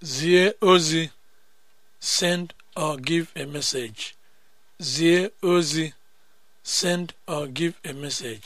zie ozi send or give a message zie ozi send or give a message